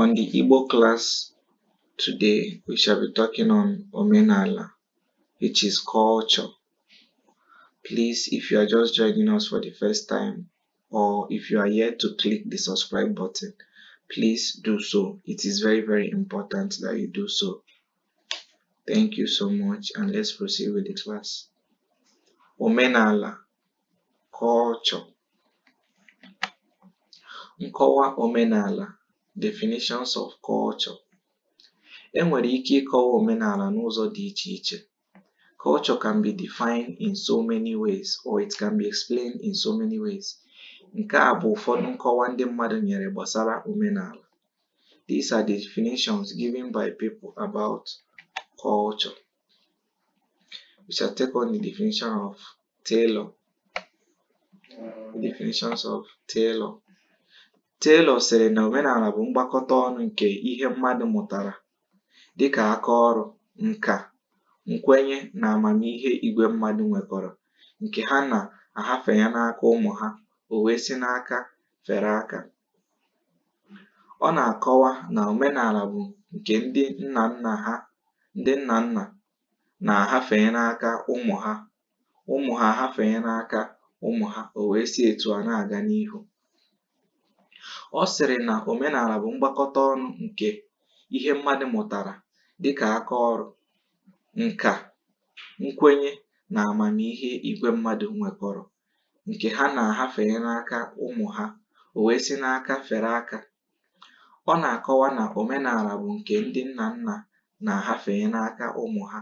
On the Igbo class today, we shall be talking on Omenala, which is culture. Please, if you are just joining us for the first time, or if you are yet to click the subscribe button, please do so. It is very, very important that you do so. Thank you so much, and let's proceed with the class. Omenala, culture. Nkọwa omenala Definitions of Culture E nwere ike ịkọwa omenala n'ụzọ dị iche iche. Culture can be defined in so many ways or it can be explained in so many ways. Nke a bụ ụfọdụ nkọwa ndị mmadụ nyere gbasara omenala. These are the definitions given by people about culture. We shall take on the definition of Taylor. Definitions of Taylor. Taylor sịrị na omenala bụ mgbakọta ọnụ nke ihe mmadụ mụtara, dịka aka ọrụ, nka, nkwenye na amamihe igwe mmadụ nwekọrọ, nke ha na-ahafe n'aka ụmụ ha o wee si n'aka fere aka. Ọ na-akọwa na omenala bụ nke ndị nna nna na-ahafenye n'aka ụmụ ha, ụmụ ha ahafenye n'aka ụmụ ha o wee si etu a na-aga n'ihu. Ọ sịrị na omenala bụ mgbakọta ọnụ nke ihe mmadụ mụtara dịka aka ọrụ, nka, nkwenye na amamihe igwe mmadụ nwekọrọ nke ha na-ahafenye n'aka ụmụ ha o wee si n'aka fere aka. Ọ na-akọwa na omenala bụ nke ndị nna nna na ahafee n'aka ụmụ ha,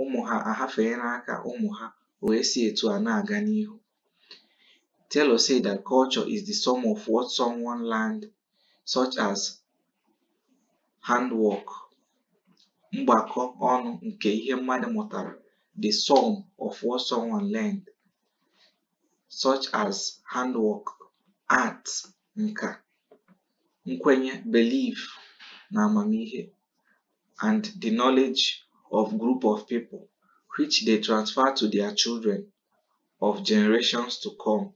ụmụ ha ahafenye n'aka ụmụ ha o wee si etu a na-aga n'ihu. Taylor said that culture is the sum of what someone learned, such as handwork, mgbakọ ọnụ nke ihe mmadụ mụtara, the sum of what someone learned, such as handwork, art, nka, nkwenye, belief, na amamihe, and the knowledge of group of people, which they transfer to their children of generations to come.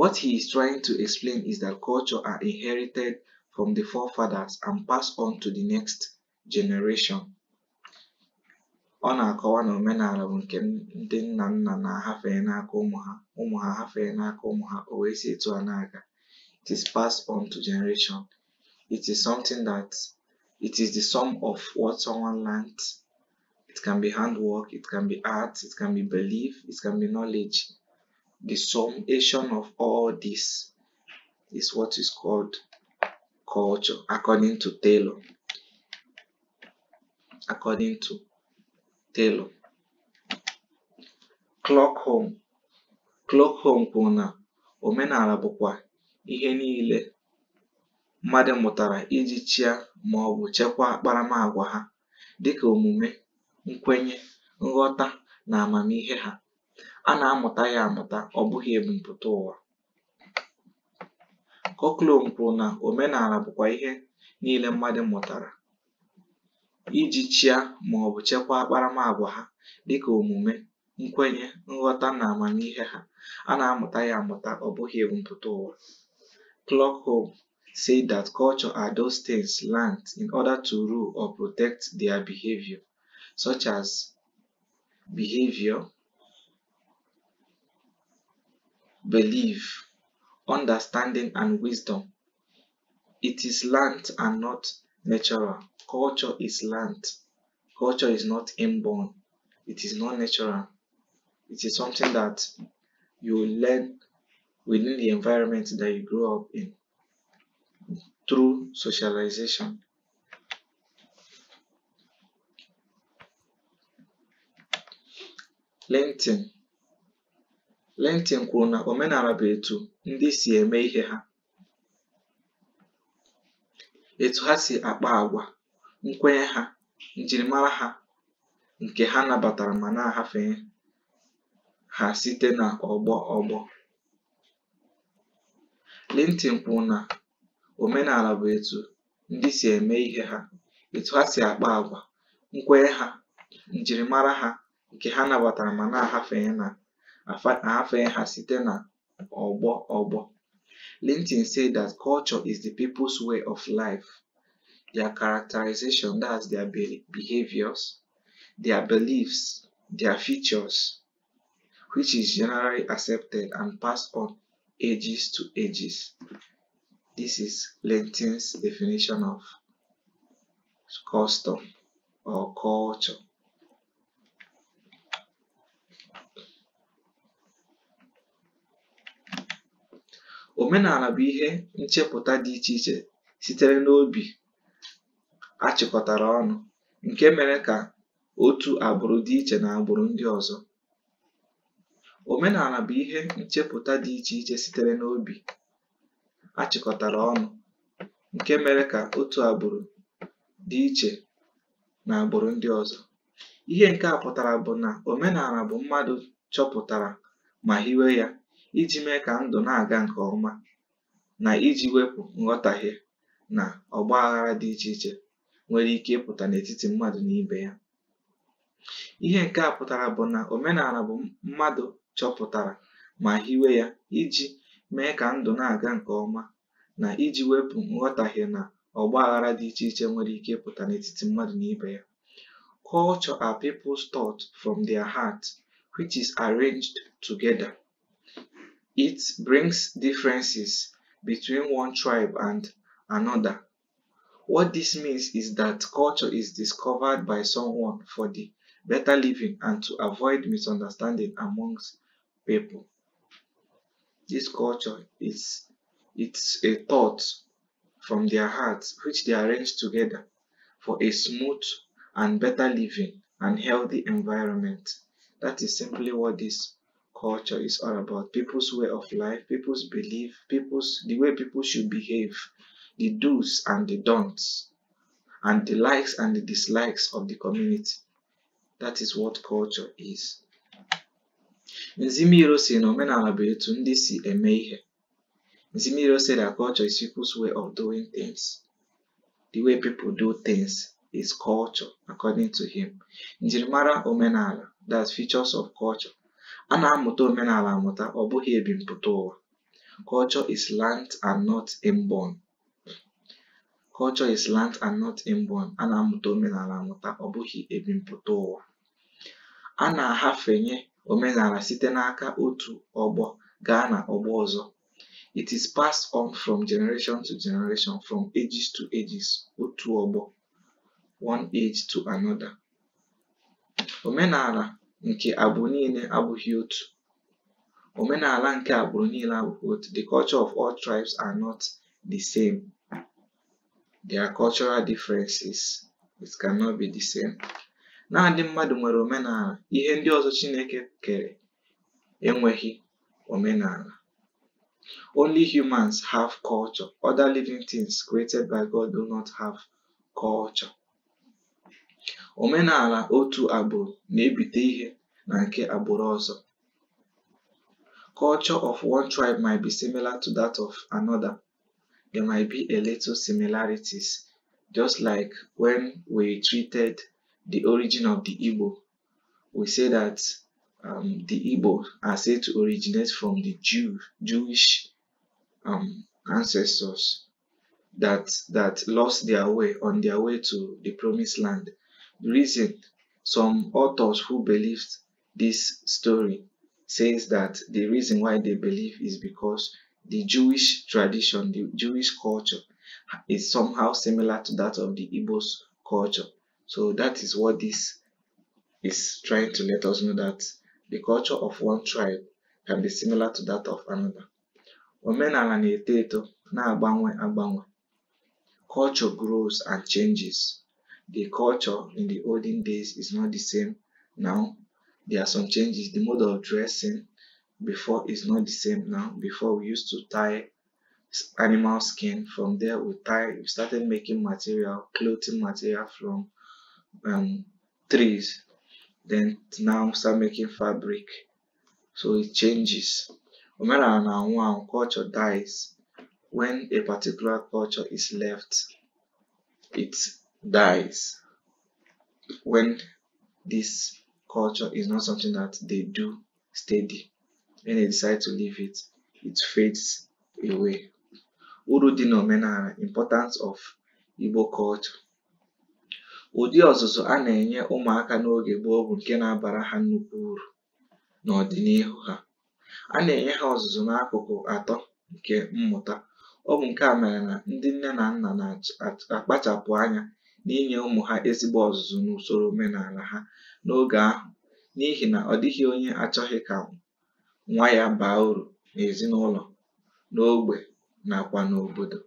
What he is trying to explain is that culture are inherited from the forefathers and passed on to the next generation. Ọ na-akọwa na omenala bụ nke ndị nna nna na-ahafe n'aka ụmụ ha ụmụ ha hafee n'aka ụmụ ha o wee si etu a na-aga. It is passed on to generation. It is something that it is the sum of what someone learnt. It can be handwork, it can be art, it can be belief, it can be knowledge. the summation of all this is what is called culture according to Taylor. According to Taylor. clock home kwuru na omenala bụkwa ihe niile mmadụ mụtara iji chịa ma ọ bụ chekwaa akparamagwa ha dịka omume, nkwenye, nghọta na amamihe ha. a na-amụta ya amụta ọ bụghị ebumpụta ụwa Coklum kwuru na omenala bụkwa ihe niile mmadụ mụtara iji chịa ma ọ bụ chekwaa akparamagwa ha dịka omume nkwenye nghọta na amamihe ha a na-amụta ya amụta ọ bụghị ebumpụta ụwa Clougholm said that culture are those things learnt in order to rule or protect their behavior, such as behavior, belief, understanding, and wisdom. It is learnt and not natural. Culture is learnt. Culture is not inborn. It is not natural. It is something that you learn within the environment that you grow up in through socialization. LinkedIn Lentịn kwuru na omenala bụ etu ndị si eme ihe ha, etu ha si akpa agwa nkwenye ha, njirimara ha, nke ha nabatara ma na-agafe ha site n'ọgbọ ọgbọ. omenala bụ etu ndị si eme ihe ha, etu ha si akpa àgwà, nkwenye ha, njirimara ha, nke ha nabatara ma na-agafe na na affairs ha site na ọgbọ ọgbọ. Linton said that culture is the people's way of life, their characterization, that's their behaviors, their beliefs, their features, which is generally accepted and passed on ages to ages. This is Linton's definition of custom or culture. Omenala bụ ihe nchepụta dị iche iche sitere n'obi achịkọtara ọnụ, nke mere ka otu agbụrụ dị iche n'agbụrụ dị iche iche agbụrụ ndị ọzọ. Ihe nke a pụtara bụ na omenala bụ mmadụ chọpụtara ma hiwe ya iji mee ka ndụ na-aga nke ọma na iji wepụ nghọtahie na ọgba aghara dị iche iche nwere ike ịpụta n'etiti mmadụ na ibe ya ihe nke a pụtara bụ na omenala bụ mmadụ chọpụtara ma hiwe ya iji mee ka ndụ na-aga nke ọma na iji wepụ nghọtahie na ọgba aghara dị iche iche nwere ike ịpụta n'etiti mmadụ na ibe ya Culture are people's thoughts from their heart, which is arranged together. It brings differences between one tribe and another. What this means is that culture is discovered by someone for the better living and to avoid misunderstanding amongst people. This culture is it's a thought from their hearts which they arrange together for a smooth and better living and healthy environment. That is simply what this culture is all about people's way of life, people's belief, people's the way people should behave, the do's and the don'ts, and the likes and the dislikes of the community. That is what culture is. Nzimiro si na si said that culture is people's way of doing things. The way people do things is culture, according to him. Njirimara omenala, that's features of culture. A na-amụta omenala amụta ọ bụghị ebimpụta ụwa. Culture is learnt and not inborn. Culture is learnt and not inborn. A na-amụta omenala amụta ọ bụghị ebimpụta ụwa. A na-ahafenye omenala site n'aka otu ọgbọ gaa na ọgbọ ọzọ. It is passed on from generation to generation, from ages to ages, otu ọgbọ, one age to another. Omenala nke agbụrụ niile abụghị otu. Omenala nke agbụrụ niile abụghị otu. The culture of all tribes are not the same. There are cultural differences. It cannot be the same. Naanị mmadụ nwere omenala. Ihe ndị ọzọ Chineke kere enweghị omenala. Only humans have culture. Other living things created by God do not have culture. Omenala otu agbụrụ na-ebite ihe na nke agbụrụ ọzọ. Culture of one tribe might be similar to that of another. There might be a little similarities, just like when we treated the origin of the Igbo. We say that um, the Igbo are said to originate from the Jew, Jewish um, ancestors that that lost their way on their way to the promised land reason some authors who believed this story says that the reason why they believe is because the Jewish tradition, the Jewish culture is somehow similar to that of the Igbo's culture. So that is what this is trying to let us know that the culture of one tribe can be similar to that of another. Omenala na-eto eto na agbanwe agbanwe. Culture grows and changes the culture in the olden days is not the same now. There are some changes. The mode of dressing before is not the same now. Before we used to tie animal skin. From there we tie. We started making material, clothing material from um, trees. Then now start making fabric. So it changes. when na one culture dies when a particular culture is left. It's dies when this culture is not something that they do steady. When they decide to leave it, it fades away. Uru dị n'omenala importance of Igbo culture. Ụdị ọzụzụ a na-enye ụmụaka n'oge gboo bụ nke na-abara ha nnukwu uru n'ọdịnihu ha. A na-enye ha ọzụzụ n'akụkụ atọ nke mmụta. Ọ bụ nke a mere na ndị nne na nna na-akpachapụ anya n'inye ụmụ ha ezigbo ọzụzụ n'usoro omenala ha n'oge ahụ n'ihi na ọ dịghị onye achọghị ka nwa ya baa uru n'ezinụlọ n'ógbè nakwa n'obodo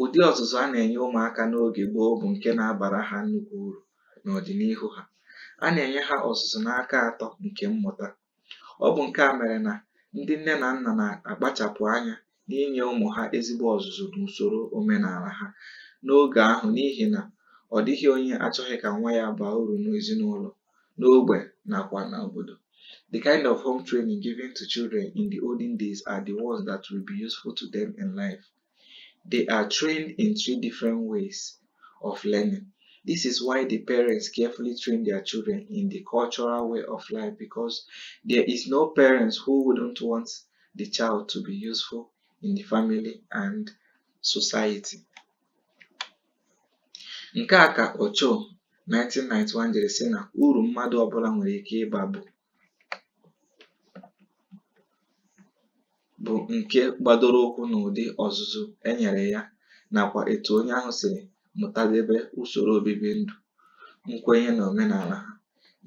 ụdị ọzụzụ a na-enye ụmụaka n'oge gboo bụ nke na-abara ha nnukwu uru n'ọdịnihu ha a na-enye ha ọzụzụ n'aka atọ nke mmụta ọ bụ nke a mere na ndị nne na nna na-akpachapụ anya n'inye ụmụ ha ezigbo ọzụzụ n'usoro omenala ha n'oge ahụ n'ihi na ọ dịghị onye achọghị ka nwa ya baa uru n'ezinụlọ n'ogbe nakwa n'obodo the kind of home training given to children in the olden days are the ones that will be useful to them in life they are trained in three different ways of learning this is why the parents carefully train their children in the cultural way of life because there is no parents who wouldn't want the child to be useful in the family and society. Nke a ka Ochoa, 1991, jiri sị na uru mmadụ ọbụla nwere ike ịba bụ nke gbadoro ụkwụ n'ụdị ọzụzụ e nyere ya nakwa etu onye ahụ siri mụtadebe usoro obibi ndụ, nkwenye na omenala ha,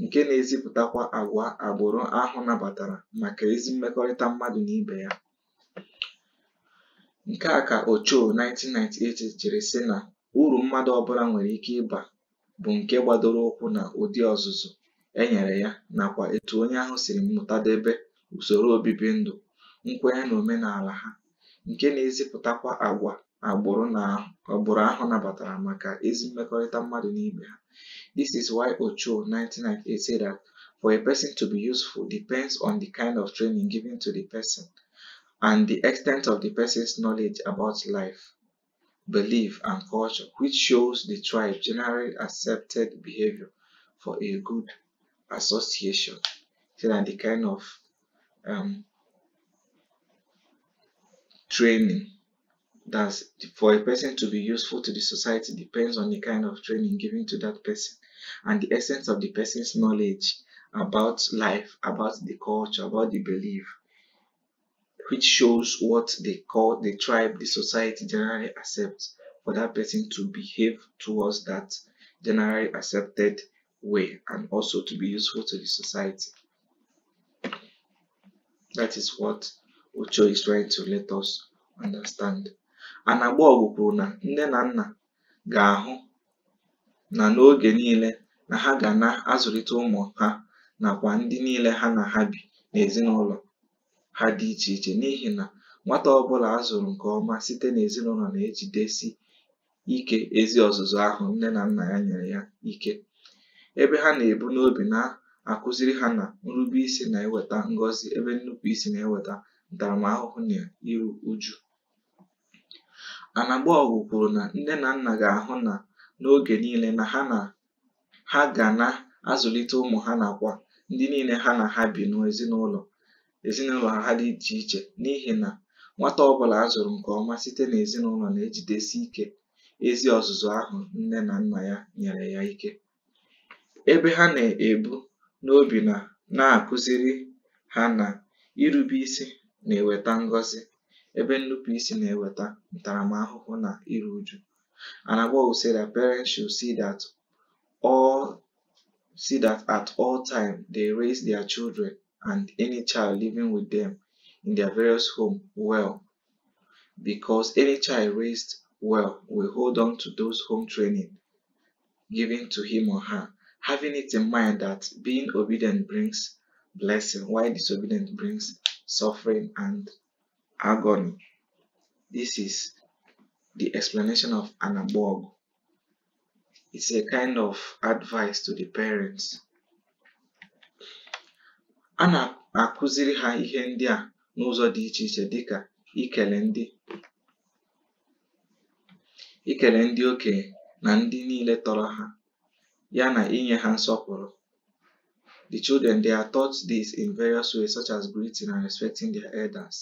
nke na-ezipụtakwa agwa agbụrụ ahụ nabatara maka ezi mmekọrịta mmadụ na ibe ya. Nke a ka Ochoa, 1998, jiri sị na Uru mmadụ ọbụla nwere ike ịba bụ nke gbadoro ụkwụ na ụdị ọzụzụ e nyere ya nakwa etu onye ahụ siri debe usoro obibi ndụ, nkwenye na omenala ha, nke na-ezipụtakwa agwa agbụrụ ahụ nabatara maka ezi mmekọrịta mmadụ na ibe ha. This is why Ochoa, 1998, say that for a person to be useful depends on the kind of training given to the person and the extent of the person's knowledge about life. belief, and culture, which shows the tribe generally accepted behavior for a good association. and the kind of um, training that for a person to be useful to the society depends on the kind of training given to that person and the essence of the person's knowledge about life, about the culture, about the belief, which shows what they call the tribe the society generally accepts for that person to behave towards that generally accepted way and also to be useful to the society. That is what Ocho is trying to let us understand. Anagbogwu kwuru na nne na nna ga-ahụ na na ha na-azụlite ụmụ ha ha dị iche iche n'ihi na nwata ọbụla a zụrụ nke ọma site n'ezinụlọ na-ejidesi ike ezi ọzụzụ ahụ nne na nna ya nyere ya ike ebe ha na-ebu n'obi na-akụziri ha na nrube isi na-eweta ngọzi ebe nnupụ isi na-eweta ntaramahụhụ na iru uju Anagbaọgụ kwuru na nne na nna ga-ahụ na n'oge niile na ha na ha ga na-azụlite ụmụ ha nakwa ndị niile ha na ha bi n'ezinụlọ ezinụlọ ha dị iche iche n'ihi na nwata ọbụla bụla a zụrụ nke ọma site n'ezinụlọ na-ejidesi ike ezi ọzụzụ ahụ nne na nna ya nyere ya ike ebe ha na-ebu n'obi na na-akụziri ha na irube isi na-eweta ngọzi ebe nnupụisi na-eweta ntaramahụhụ na iru uju and parents should see see that at all time they raise their children and any child living with them in their various home well because any child raised well will hold on to those home training given to him or her having it in mind that being obedient brings blessing while disobedient brings suffering and agony this is the explanation of anabog it's a kind of advice to the parents a na-akụziri ha ihe ndị a n'ụzọ dị iche iche dịka ikele ndị oke ndị na ndị niile tọrọ ha ya na inye ha nsọpụrụ The children they are taught this in various ways such as greeting and respecting their elders.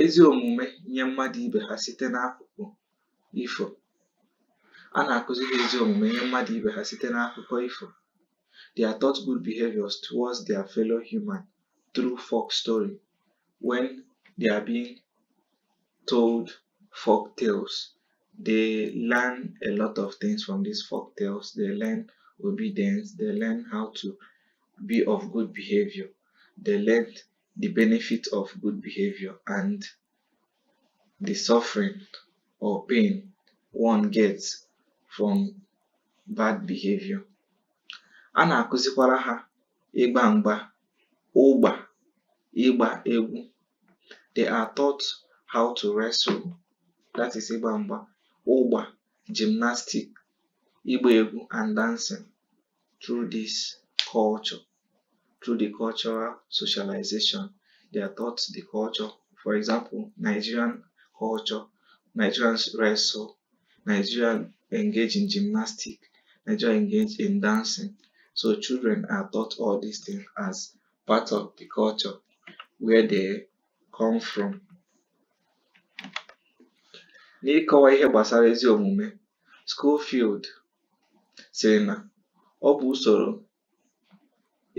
Ezi omume nye mmadụ ibe ha site n'akụkụ ifo. A ezi omume nye mmadụ ibe ha site n'akụkọ ifo. They are taught good behaviors towards their fellow human through folk story when they are being told folk tales. They learn a lot of things from these folk tales. They learn obedience. They learn how to be of good behavior. They learn the benefit of good behavior and the suffering or pain one gets from bad behavior a nà-àkụzikwara hā ịgbā m̄gbā ụgbà ịgbā egwu they are taught how to wrestle that is ịgbā m̄gbā ụgbà gymnastic ịgbā egwu and dancing through this culture through the cultural socialization they are taught the culture for example Nigerian culture Nigerians wrestle Nigerians engage in gymnastic Nigerians engage in dancing So children are taught all these things as part of the culture where they come from. N'ịkọwa ihe gbasara ezi omume, Schofield sịrị na ọ bụ usoro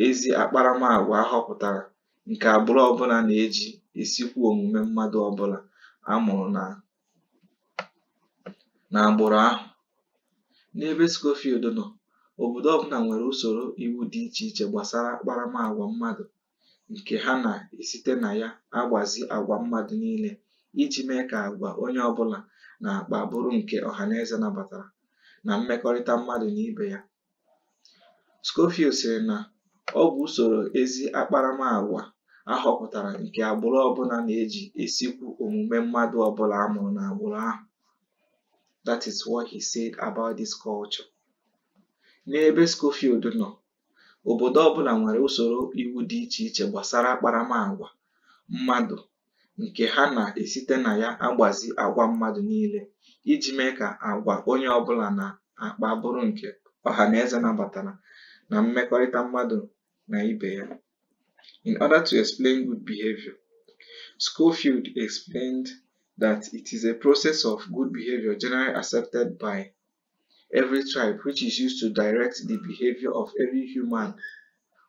ezi akparamagwa ahọpụtara nke agbụrụ ọbụla na-eji esikwu omume mmadụ ọbụla a mụrụ na n'agbụrụ ahụ. N'ebe Schofield nọ Obodo ọbụla nwere usoro iwu dị iche iche gbasara akparamagwa mmadụ nke ha na-esite na ya agbazi agwa mmadụ niile iji mee ka àgwà onye ọbụla na-akpa bụrụ nke ọhaneze nabatara na mmekọrịta mmadụ na ibe ya. Scorpio sịrị na ọ bụ usoro ezi akparamagwa a họpụtara nke agbụrụ ọbụla na-eji esikwu omume mmadụ ọbụla amụrụ n'agbụrụ ahụ. That is what he said about culture. n'ebe Schofield nọ, obodo ọbụla nwere usoro iwu dị iche iche gbasara akparamagwa mmadụ nke ha na-esite na ya agbazi agwa mmadụ niile iji mee ka agwa onye ọbụla na-akpa bụrụ nke eze nabatara na mmekọrịta mmadụ na ibe ya. In order to explain good behavior, Schofield explained that it is a process of good behavior generally accepted by every tribe, which is used to direct the behavior of every human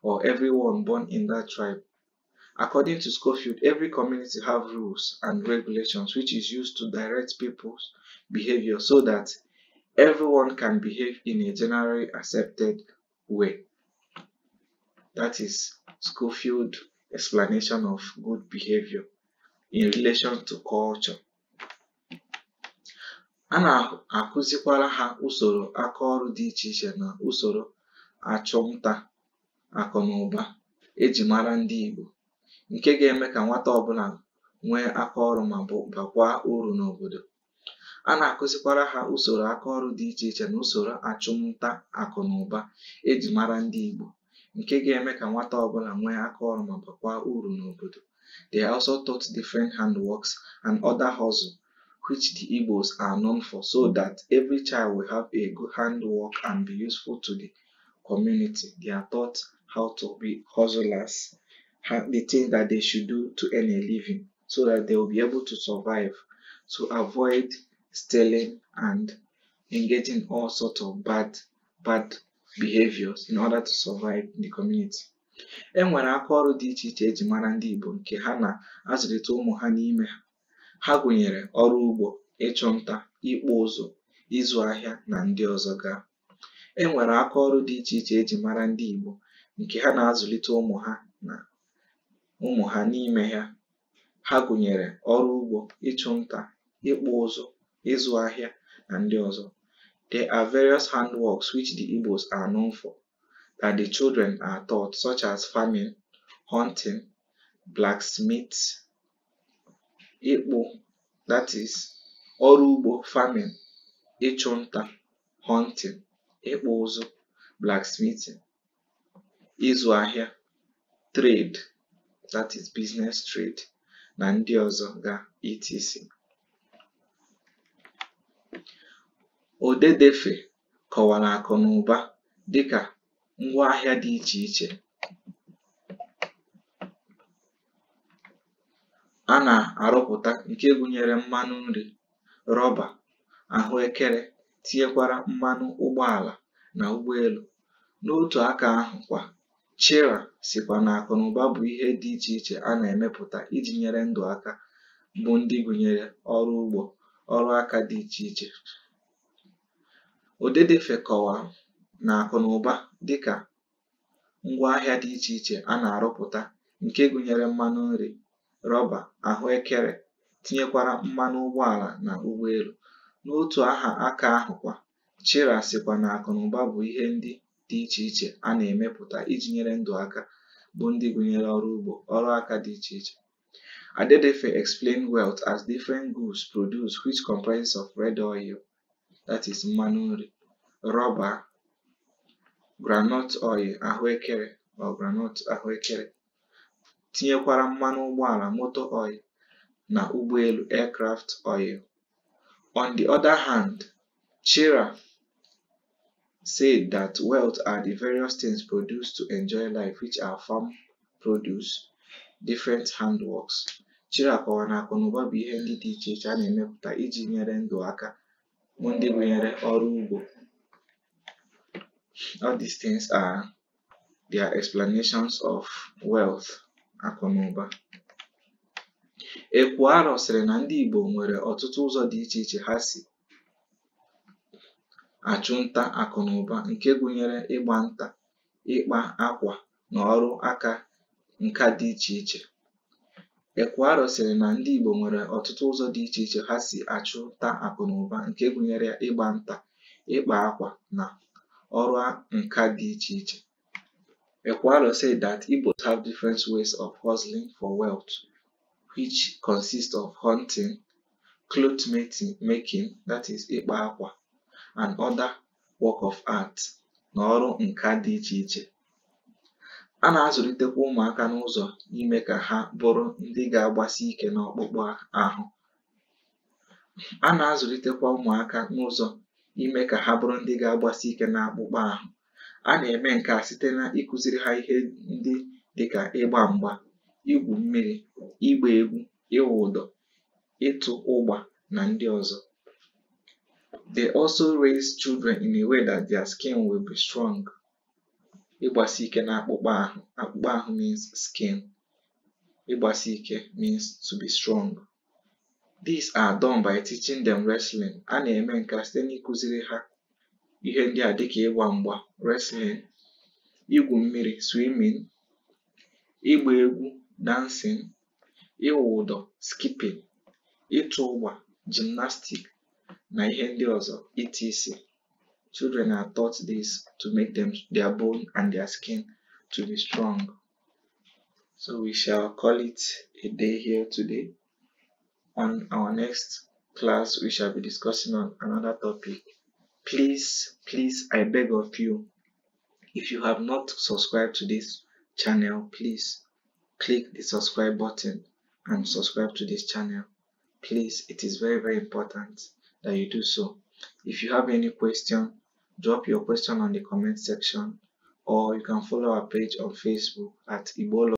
or everyone born in that tribe. According to Schofield, every community have rules and regulations which is used to direct people's behavior so that everyone can behave in a generally accepted way. That is Schofield explanation of good behavior in relation to culture. a na nà ha usoro aka ọrụ dị iche ichè nà usoro achụmnta àkụ̀nụ̀ba ejì mara ndị Ìgbò ǹke ga-eme kà nwata ọbụlà nwee mà e mara ndị Ìgbò ǹke ga-eme kà nwata ọbụlà nwee akaọrụ̄ mà bakwaa uru n'obodo. They also taught different handworks and other hustle which the Igbos are known for, so that every child will have a good handwork and be useful to the community. They are taught how to be hustlers, the things that they should do to earn a living, so that they will be able to survive, to avoid stealing and engaging all sorts of bad, bad behaviors in order to survive in the community. E nwere aka dị iche iche eji mara ndị Igbo nke ha na-azụlite ụmụ ha n'ime ha. Ha gụnyere ọrụ ugbo, ịchụ nta, ịkpụ ụzụ, ịzụ ahịa na ndị ọzọ ga. E nwere akaọrụ dị iche iche e ji mara ndị Igbo nke ha na-azụlite ụmụ ha na ụmụ ha n'ime ya. Ha gụnyere ọrụ ugbo, ịchụ nta, ịkpụ ụzụ, ịzụ ahịa na ndị ọzọ. There are various handworks which the Igbos are known for that the children are taught such as farming, hunting, blacksmith ịkpụ ọrụ ugbo farming, ịchụ nta hunting, ịkpụ ụzụ blacksmithing, ịzụ ahịa trade that is business trade na ndị ọzọ ga etc. Odedefe kọwara akụ na ụba dị ngwaahịa dị iche iche a na-arụpụta nke gụnyere mmanụ nri, rọba, ahụekere tinyekwara mmanụ ụgbọala na ụgbọelu. N'otu aka ahụ kwa, Chira sịkwa na akụnụba bụ ihe dị iche iche a na-emepụta iji nyere ndụ aka bụ ndị gụnyere ọrụ ugbo, ọrụ aka dị iche iche. Odedefe kọwa na akụnụba dịka ngwaahịa dị iche iche a na-arụpụta nke gụnyere mmanụ nri rọba, ahụekere, tinyekwara mmanụ ụgbọala na ụgbọelu. N'otu aha aka ahụkwa, Chira sịkwa na akụnụba bụ ihe ndị dị iche iche a na-emepụta iji nyere ndụ aka bụ ndị gụnyere ọrụ ugbo, ọrụ aka dị iche iche. Adedefe explain wealth as different goods produced which comprises of red oil that is mmanụ nri, rọba, groundnut oil ahụekere or groundnut ahụekere tinyekwara mmanụ ụgbọala motor oil na ụgbọelu aircraft oil. On the other hand, chira said that wealth are the various things produced to enjoy life which are farm produce, different handworks. chira kọwara na akụnụba bụ ihe ndị dị iche iche a na-emepụta iji nyere ndụ aka bụ ndị gụnyere ọrụ ugbo. All these things are their explanations of wealth. Akụ na ụba Ekwuarọ sịrị na ndị Igbo nwere ọtụtụ ụzọ dị iche iche ha si achụ nta nke gụnyere ịgba nta ịkpa akwa na ọrụ aka sịrị na ndị Igbo nwere ọtụtụ ụzọ dị iche iche ha si achụ nta akụ nke gụnyere ịgba nta ịkpa akwa na ọrụ nka dị iche iche Ekwaro said that Igbos have different ways of hustling for wealth, which consist of hunting, cloth making, that is ịkpa akwa, and other work of art na ọrụ nka dị iche iche. A na-azụlitekwa ụmụaka n'ụzọ ime ka ha bụrụ ndị ga-agbasi ike n'ọkpụkpụ A na-azụlitekwa ụmụaka n'ụzọ ime ka ha bụrụ ndị ga-agbasi ike n'akpụkpọ ahụ. a na-eme nke a site na ịkụziri ha ihe ndị dịka ịgba mgba igwu mmiri ịgba egwu ịwụ ụdọ ịtụ ụgba na ndị ọzọ they also raise children in a way that their skin will be strong ịgbasi ike na akpụkpọ ahụ akpụkpọ ahụ means skin ịgbasi ike means to be strong these are done by teaching them wrestling a na-eme nke a site n'ịkụziri ha Ihe ndị a dịka ịgba mgba wrestling, igwu mmiri swimming, ịgba egwu dancing, ịwụ ụdọ skipping, ịtụ ụgba gymnastics na ihe ndị ọzọ etc. Children are taught this to make them, their bone and their skin to be strong. So we shall call it a day here today. On our next class, we shall be discussing on another topic please please i beg of you if you have not subscribed to this channel please click the subscribe button and subscribe to this channel please it is very very important that you do so if you have any question drop your question on the comment section or you can follow our page on facebook at Ibolo